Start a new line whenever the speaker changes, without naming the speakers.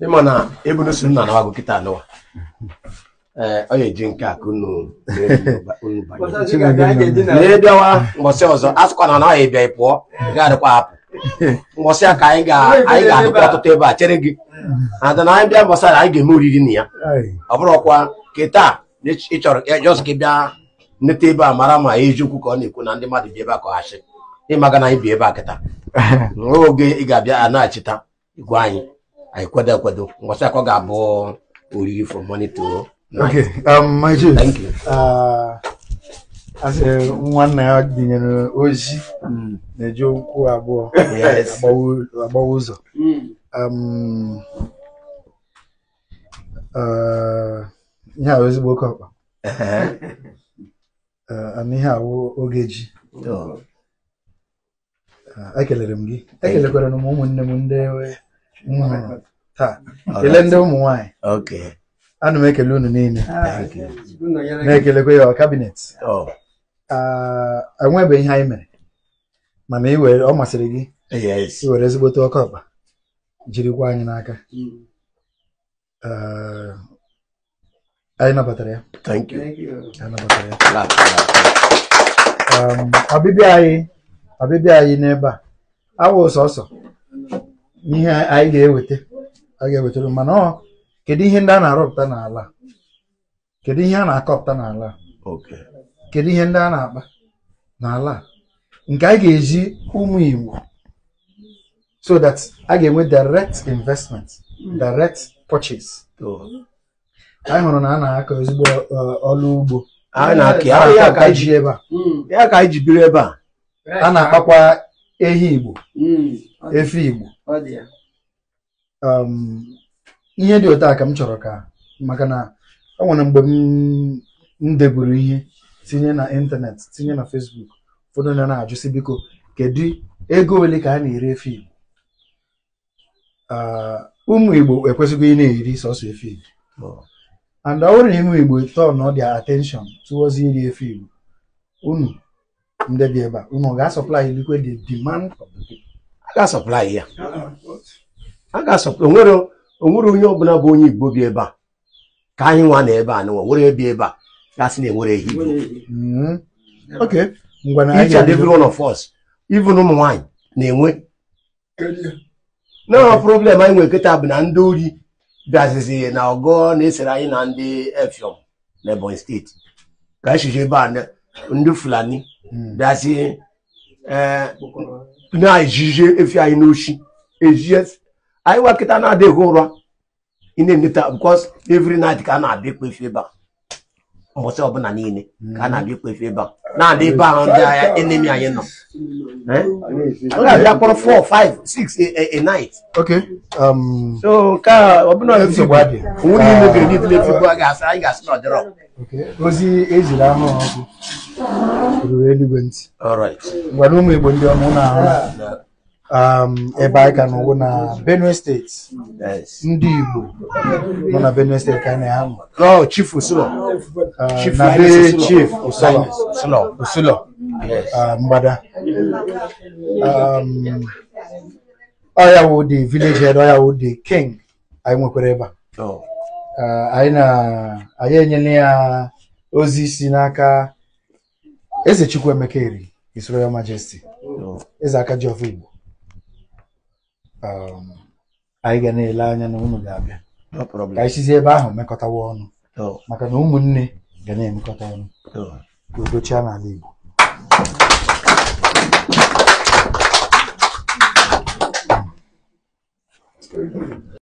ịma na ebunu si nna na-agụ kịta anụwa ọ eji nke ka unu na ọzọ a sịkwa na ebịa pụọ ga-adịkwa hapụ a ka anyị ga-adịkwa ọtụtụ ebe a chere gị ada na anyị bịa eme oriri na ya ọ bụrụkwa taa ịchọrọ ka bịa nleta ebe a mara ma ka ọ na-ekwu na bi ebe a anyị bi ebe a kịta oge ị ga-abịa anyị anyị akwado ngwọcha akọ ga-abụ oriri for morning to okay um my juice thank you
uh, nwanna ya dịnyere ozi hmm. na-eji ụkwụ abụọ agbawa ụzọ hmm. um, uh, ihe ahụ ezigbo oke ọkpa uh, ana ihe ahụ oge ji oh. ekelere m gị ekelekwara ụmụnne m ndị Ile ndị ụmụ nwanyị ana m ekele unu niile ah, na-ekelekwa ya kabinet oh. ah, enwebe ihe anyị mere mana ọ masịrị gị iwere ezigbote ọkụ ọkpa jirikwa anyị n'aka mm. ah, anyị nabatara ya ọbịbịa anyị ọbịbịa anyị n'ebe a awụ sọsọ ihe anyị ga-eweta a ga-ewetara mana ọ kedu ihe ndị a na-arụpụta n'ala kedu ihe a na-akọpụta n'ala kedu ihe ndị a na-akpa n'ala nke anyị ga-eji ụmụ Igbo so that a ga-enwe direct investment direct purchase anyị hụrụ na a na-akọ ezigbo uh, ọlụ ugbo ya ka anyị ji ebe a
hmm. a
na-akpakwa ehi Igbo hmm. efi Igbo Um, ihe dị otu a ka m chọrọ ka maka na ọ nwere mgbe m deburu ihe tinye na ịntanetị tinye na fesbuk ụfọdụ na na-ajụsị biko kedu ego ole ka a na-ere efi uh, ụmụ Igbo ekwesịghị ị na-eri sọsọ efi Igbo and ọ bụrụ na ụmụ Igbo ọ dị atenshọn towards iri efi unu ndị dị ebe a unu ga-asọplai liquid the
demand the people Ah, ah, a ga ya a ga-asọpụrụ onwere onye ọbụla bụ onye Igbo bi ebe a ka anyị nwa na ebe a na nwere ebi ebe a gasị na enwere ehi hmm.
each and every one of
us even ụmụ nwaanyị na-enwe na problem anyị nwere nkịta bụ na ndị ori bịazizi na ọgọ na-esere anyị na ndị Effium na Ebonyi steeti ka anyị e chiji ebe a ndị Fulani hmm. bịazi eh, na-ejije efi anyị n'ochi ejie anyị nwa na-adịghị ụra ị na-eneta because every night ka a na-abịa ikpe efi ebe a mbọchị ọbụla niile ka a na-abịa ikpe efi ebe a na-adị ebe ahụ ndị agha enemi anyị nọ eh? ọ ga 4 5 6 a night um, so nke
ọbụla ozi ejiri eluigwe ntị gwara ụmụ Igbo ndị ọma na-ahụ ebe anyị ka n'ụwụ na Benue steeti ndị Igbo nọ na Benue steeti ka anyị na-ahụ Chief Usulo ah, na be Chief Usulo usulo. mgbada ọya wụ dị village head ọya wụ dị king anyị nwekwara oh. ah, ebe a anyị enyela ya ozi si n'aka eze chukwu emeka eri his royal majesty oh. eze aka ji of igbo um, anyị ga na-ele anya na unu ga-abịa ka anyị sizie ebe ahụ mekọtawa ọnụ oh. maka na ụmụnne ga na-emekọta ọnụ oh. ka udo n'ala igbo